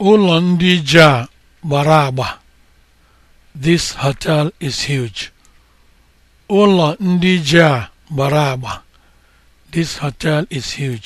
Ụlọ ndị ji a gbara agba. This hotel is huge. agba. This hotel is huge.